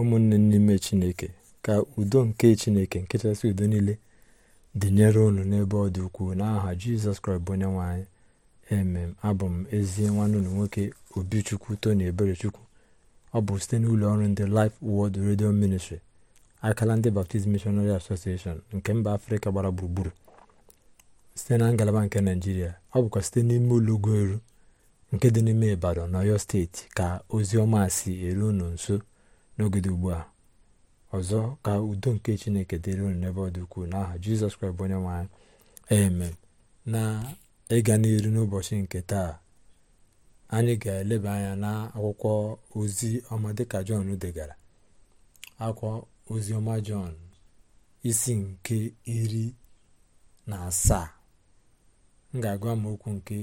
ụmụnne n'ime chineke ka udo nke chineke nke chasị udo niile dịnyere unu n'ebe ọ dị ukwuu n'aha jizọs kraịst bụ onye nwe emem abụ m ezi nwanne unu nwoke obichukwu tony eberechukwu ọ bụ site n'ụlọ ọrụ ndị Life Word redio Ministry akala ndị Baptist mishonary Association nke mba afrịka gbara gburugburu site na ngalaba nke naijiria ọ bụkwa site n'ime ụlọ ugo eru nke dị n'ime Ibadan na Ọyọ steeti ka ozi ọma si eru unu nso n'ogede ugbu a ọzọ ka udo nke chineke dịrị unu n'ebe ọ dị ukwuu n'aha jizọs kraịst bụ onye nwanyị amen na ịga n'iru n'ụbọchị nke taa anyị ga-eleba anya na akwụkwọ ozi ọma dịka jọn degara akwụkwọ ozi ọma jọn isi nke iri na asaa m ga m okwu nke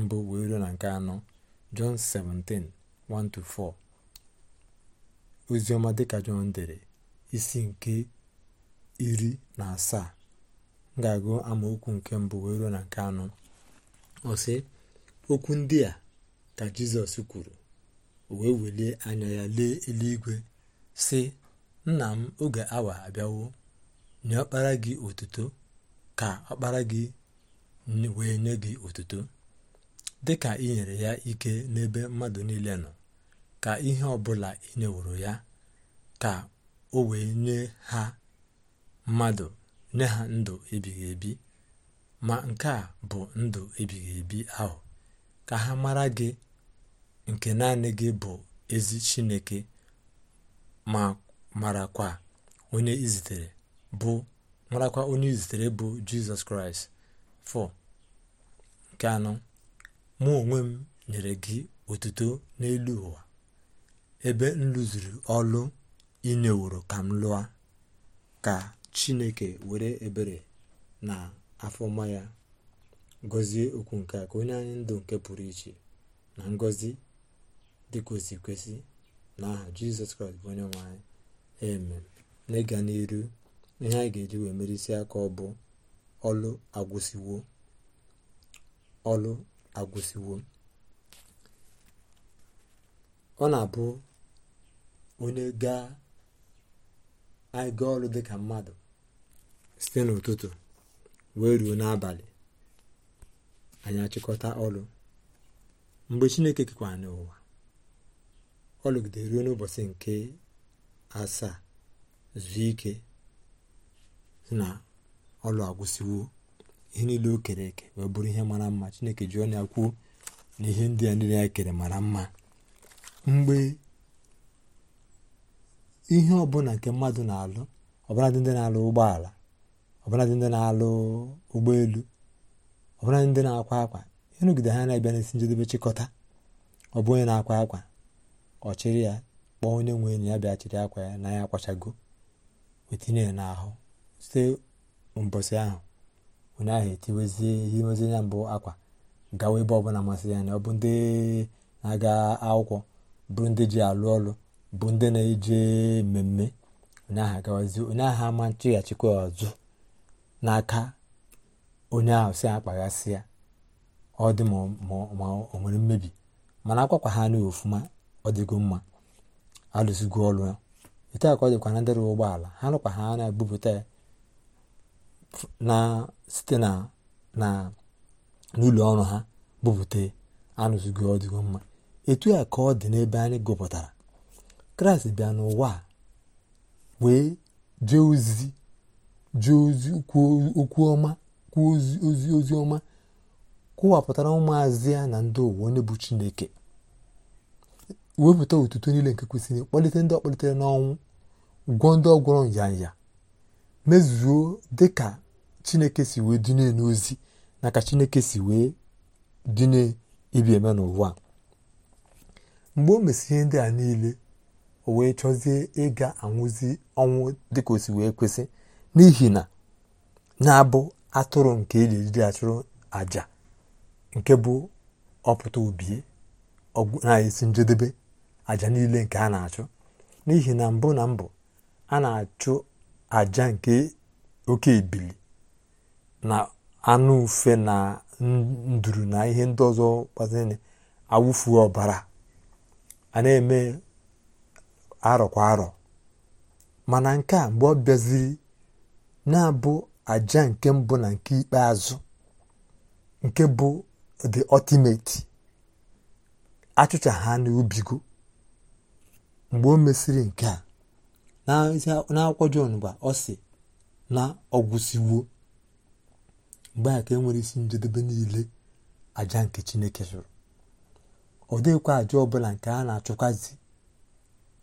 mbụ wee ruo na nke anọ jọn 17:1-4 oziọma dịka jọn dere isi nke iri na asaa m ga-agụ amaokwu nke mbụ wee ruo na nke anọ ọsị okwu ndị a ka jizọs kwuru o wee welie anya ya lee eluigwe sị nna m oge awa abịawo nye ọkpara gị otuto ka ọkpara gị wee nye gị otuto dịka ị nyere ya ike n'ebe mmadụ niile nọ ka ihe ọbụla ị nyeworo ya ka o wee nye ha mmadụ nye ha ndụ ebighị ebi ma nke a bụ ndụ ebighị ebi ahụ ka ha mara gị nke naanị gị bụ ezi chineke ma marakwa onye izitere bụ marakwa onye izitere bụ jizọs kraịst fọ nke anọ mụ onwe m nyere gị otuto n'elu ụwa ebe m lụziri ọlụ ineworo ka m lụọ ka chineke were ebere na afọma ya gọzie okwu nke a ka onye anyị ndụ nke pụrụ iche na ngọzi dịka osi kwesị n'aha jizọs kraịst bụ onye nwanyị anyị amen n'ịga n'iru ihe anyị ga-eji wee merisi aka ọ bụ ọlụ agwụsiwo ọlụ agwụsiwo ọ na-abụ onye gaa anyị gaa ọrụ dịka mmadụ site n'ụtụtụ wee ruo n'abalị anyị achịkọta ọrụ mgbe chineke kekwa n'ụwa ọlụgide ruo n'ụbọchị nke asaa zuo ike na ọlụ agwụsịwo ihe niile o kere eke wee bụrụ ihe mara mma chineke ji ọnụ ya kwuo na ihe ndị a niile ya kere mara mma mgbe ihe ọbụla nke mmadụ na-alụ ọbụladị ndị na-alụ ụgbọala ọbụladị ndị na-alụ ụgbọelu ọbụladị ndị na-akwa akwa ịnụgide ha na-abịa n'isi njedebe chịkọta ọ bụ onye na-akwa akwa ọchịrị ya kpọọ onye nwe enyi ya bịa chịrị akwa ya na ya akwachago wetinye ya n'ahụ site mbọsị ahụ onye ahụ etiwezie ihe imezi ya mbụ akwa gawa ebe ọbụla masị ya na ọ bụ ndị na-aga akwụkwọ bụrụ ndị ji alụ ọlụ bụ ndị na-eje mmemme onye aha ama nchịghachikwa ọzụ n'aka onye ahụ si akpaghasị ya ọ dị ma o nwere mmebi mana akwakwa ha anụghị ofuma ọ dịgo mma alụsigo ọrụ ya ete a ka ọ dịkwa na ndị ụgbọala ha nụkwa ha na-ebupụta ya site na n'ụlọ ọrụ ha bupụta ya anụzigo ọ mma etu a ka ọ dị n'ebe anyị gụpụtara kraịst bịa n'ụwa wee jee ozi jee ozi okwu ọma kwuo ozi ozi ọma kwụwapụtara ụmụazị ya na ndị ụwa onye bụ chineke wepụta otuto niile nke kwesịrị kpalite ndị ọkpalitere n'ọnwụ gwọọ ndị ọgwọrọ nyanya mezuo dịka chineke si wee dịne n'ozi na ka chineke si wee dịne ibi eme n'ụwa mgbe o mesịrị ndị a niile o wee chọzie ịga anwụzi ọnwụ dịka o si wee kwesị n'ihi na na-abụ atụrụ nke eji ejiri achụrụ nke bụ ọpụta obie na-esi njedebe àjà niile nke a na-achụ n'ihi na mbụ na mbụ a na-achụ àjà nke oke ebili na anụ ufe na nduru na ihe ndị ọzọ gbaziri awụfu ọbara a na-eme arọ kwa arọ mana nke a mgbe ọ bịaziri na-abụ aja nke mbụ na nke ikpeazụ nke bụ the ultimate achụcha ha n'ubigo mgbe o mesịrị nke a n'akwụkwọ jon gba ọ si na ọgwụsiwo mgbe a ka e nwere isi njedebe niile aja nke Chineke chụrụ ọ dịghịkwa aja ọbụla nke a na-achụkwazi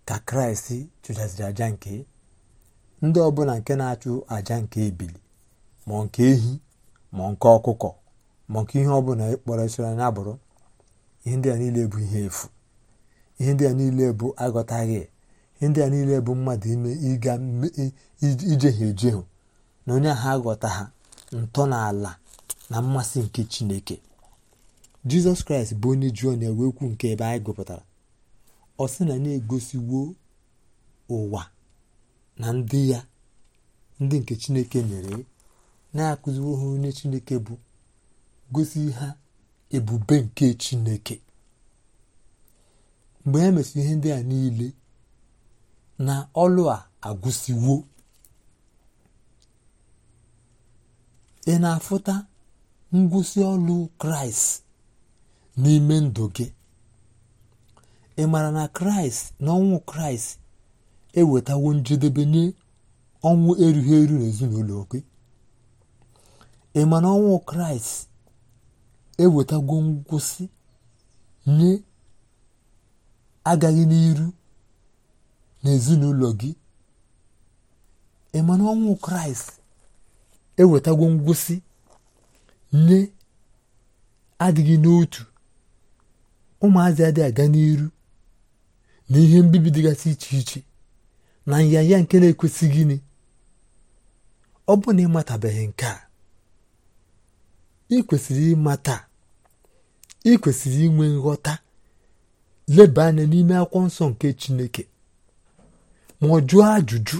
ka kraịst chụjasịrị aja nke ndị ọbụla nke na-achụ aja nke ebili ma nke ehi ma nke ọkụkọ ma nke ihe ọbụla ịkpọrọ esora na-abụrụ. ihe ndị a niile bụ ihe efu ihe ndị a niile bụ aghọtaghị ihe ndị a niile bụ mmadụ ime ịga ijehie ejehu na onye ahụ aghọta ha ntọala na mmasị nke chineke jizọs kraịst bụ onye jụọ na wee kwu nke ebe anyị gụpụtara ọ sị na na-egosiwo ụwa na ndị ya ndị nke chineke nyere na-akụziwo ha onye chineke bụ gosi ha ebube nke chineke mgbe e mesịrị ihe ndị a niile na ọlụ a agwụsiwo ị na-afụta ngwụsị ọlụ kraịst n'ime ndụ gị ị mara na kraịst na ọnwụ kraịst ewetawo njedebe nye ọnwụ erughị eru n'ezinụlọ gị ị ma na ọnwụ kraịst ewetago ngwụsị nye agaghị n'iru n'ezinụlọ gị ị ma na ọnwụ kraịst ewetago ngwụsị nye adịghị n'otu ụmụazị adịghị aga n'iru na ihe mbibi dịgasị iche iche na nyanya nke na-ekwesị gịnị ọ bụ na ịmatabeghị nke a ị kwesịrị ịmata ị kwesịrị inwe nghọta leba anya n'ime akwụkwọ nsọ nke Chineke ma ọ jụọ ajụjụ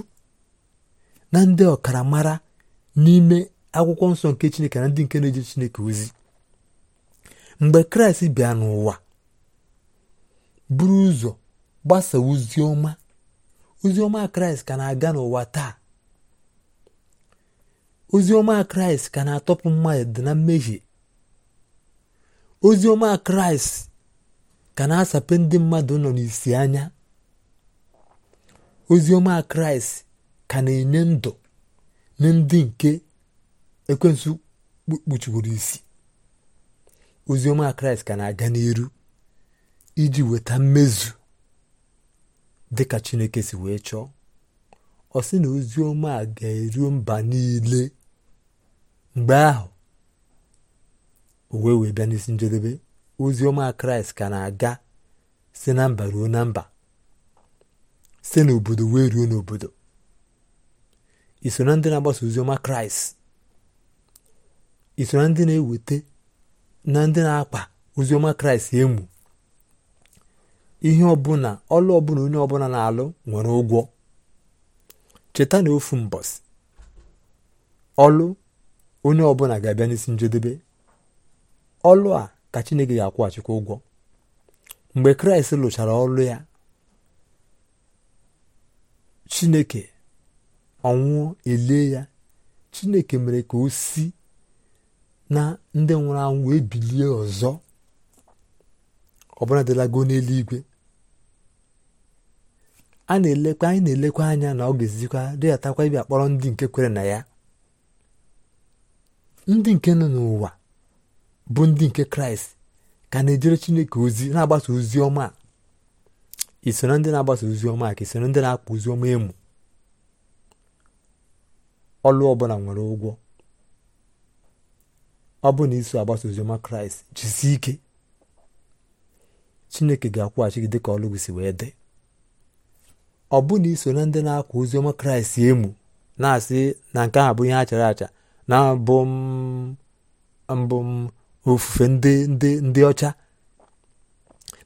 na ndị ọkaramara n'ime akwụkwọ nsọ nke Chineke na ndị nke na-eje Chineke ozi mgbe Kraịst bịa n'ụwa buru ụzọ gbasaa ozi ọma ozi ọma kraịst ka na-aga n'ụwa taa ozi ọma kraịst ka na-atọpụ mmadụ na mmehie ozi ọma kraịst ka na-asape ndị mmadụ nọ n'isi anya ozi ọma kraịst ka na-enye ndụ na ndị nke ekwensu kpuchiworo isi ozi ọma kraịst ka na-aga n'iru iji weta mmezu dị ka chineke si wee chọọ ọ sị na ozi ọma a ga-eruo mba niile mgbe ahụ o wee wee bịa n'isi njedebe ozi ọma kraịst ka na-aga si na mba ruo na mba si n'obodo wee ruo n'obodo iso na ndị na-agbasa ozi ọma kraịst iso na ndị na-eweta na ndị na-akpa ozi ọma kraịst emu ihe ọbụla ọlụ ọbụla onye ọbụla na-alụ nwere ụgwọ cheta na ofu mbọsị ọlụ onye ọbụla ga-abịa n'isi njedebe ọlụ a ka Chineke ga-akwụghachikwa ụgwọ mgbe Kraịst lụchara ọlụ ya Chineke ọnwụọ elie ya Chineke mere ka o si na ndị nwụrụ anwụ wee bilie ọzọ ọbụla dịlago n'eluigwe a na-elekwa anyị na-elekwa anya na ọ ga-ezikwa dịghatakwa ịbịa kpọrọ ndị nke kwere na ya ndị nke nọ n'ụwa bụ ndị nke kraịst ka na-ejere chineke ozi na-agbasa ozi ọma isoro ndị na-agbasa ozi ọma ka isoro ndị na-akpa ozi ọma emu ọlụ ọbụla nwere ụgwọ ọ bụ na iso agbasa oziọma kraịst jisie ike chineke ga-akwụghachi gị dịka ọlụ gị si wee dị ọ iso na ndị na-akwa oziọma Kraịst emu na-asị na nke ahụ bụ ihe achara chara acha na mbụ mbụ ofufe ndị ndị ndị ọcha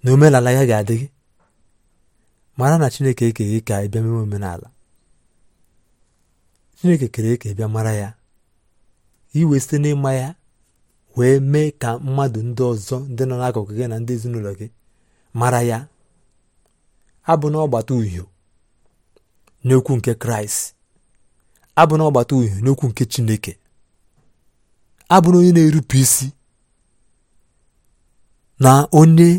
na omenala ya ga-adị gị mara na Chineke gị ka ị bịa omenala Chineke kere eke bịa mara ya iwe site n'ịma ya wee mee ka mmadụ ndị ọzọ ndị nọ n'akụkụ gị na ndị ezinụlọ gị mara ya abụ na ọgbata uhio n'okwu nke kraịst na ọgbata uhie n'okwu nke chineke na onye na-erupụ isi na onye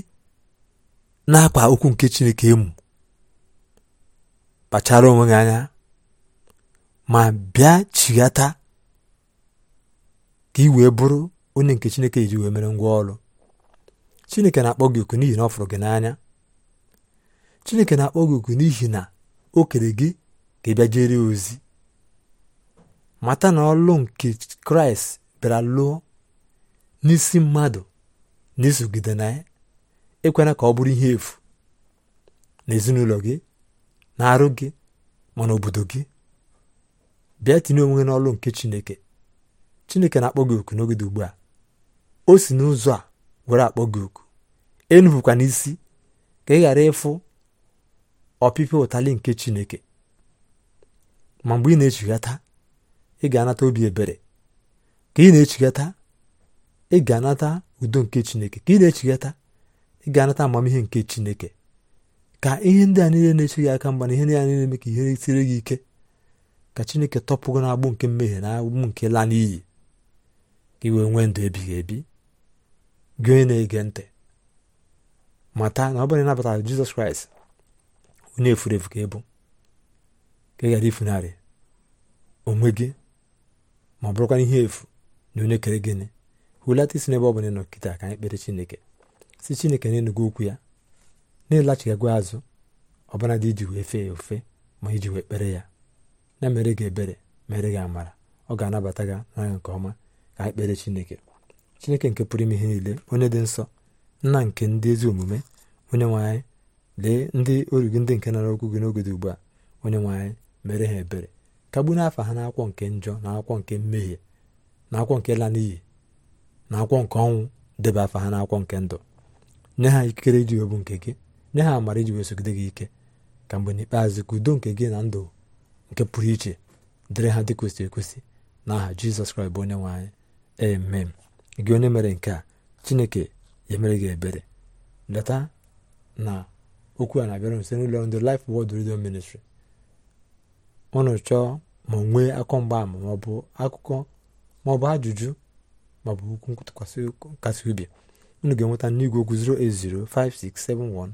na-akpa okwu nke chineke emu kpachara onwe gị anya ma bịa chighata ka ị wee bụrụ onye nke chineke iji wee mere ngwa ọrụ chineke na-akpọ gị oku n'ihi na ọ fụrụ gị n'anya chineke na-akpọ gị oku n'ihi na o kere gị ka ị bịa ozi mata na ọlụ nke kraịst bịara lụọ n'isi mmadụ na isogide na ya ekwena ka ọ bụrụ ihe efu n'ezinụlọ gị na arụ gị ma n'obodo gị bịa tinye onwe n'ọlụ nke chineke chineke na-akpọ gị oku n'oge ugbu a o si n'ụzọ a were akpọ gị oku enupụkwa n'isi ka ị ghara ịfụ ọpịpịa ụtalị nke chineke ma mgbe ị na-echighata ị ga-anata obi ebere ka ị na-echighata ị ga-anata udo nke chineke ka ị na-echighata ị ga-anata amamihe nke chineke ka ihe ndị a niile na-eche gị aka mgba na ihe ndị a niile eme ka ihe siri gị ike ka chineke tọpụgo n'agbụ nke mmehie na agbụ nke laa n'iyi ka iwee nwee ndụ ebighị ebi gị onye na-ege ntị mata na ọ bụrụ na ịnabata Jizọs Kraịst onye efurefu efu ka ịbụ ka ị ghara ifunarị onwe gị ma ọ bụrụkwa ihe efu na onye kere gịnị hụlata isi n'ebe ọ bụla nọ kịta ka anyị kpere chineke si chineke na enugwu okwu ya na-ịlachigago azụ ọbara dị iji wee fee ya ofe ma iji wee kpere ya na mere gị ebere mere gị amara ọ ga-anabata gị n'anya nke ọma ka anyị kpere chineke chineke nke pụrụ ime ihe niile onye dị nsọ nna nke ndị ezi omume onye nwe anyị lee ndị oru gị ndị nke nara okwu gị n'oge dị ugbu a onye nwanyị mere ha ebere kagbu n'afọ ha n'akwọ nke njọ na akwụkwọ nke mmehie na akwọ nke la n'iyi na akwụkwọ nke ọnwụ debe afọ ha n'akwọ nke ndụ nye ha ikikere iji obu nke gị nye ha amara iji wee gị ike ka mgbe n'ikpeazụ ka udo nke gị na ndụ nke pụrụ iche dịrị ha dị kwesịrị ekwesị n'aha jizọs kraịst bụ onye nwanyị anyị emem gị onye mere nke a chineke ya mere gị ebere leta na okwu a na-abịara nso n'ụlọ ndị Life Word Radio Ministry unu chọọ ma nwee akọ mgbaama maọbụ akụkọ maọbụ ajụjụ maọbụ okwu nkasi obi unu ga-enweta n'igwe okwu 08056719493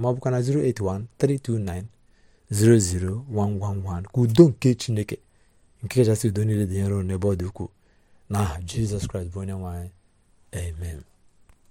maọbụkwa na 08132900111 ka udo nke Chineke nke kachasị udo niile dị nro n'ebe ọ dị ukwuu n'aha Jizọs Kraịst bụ onye nwe amen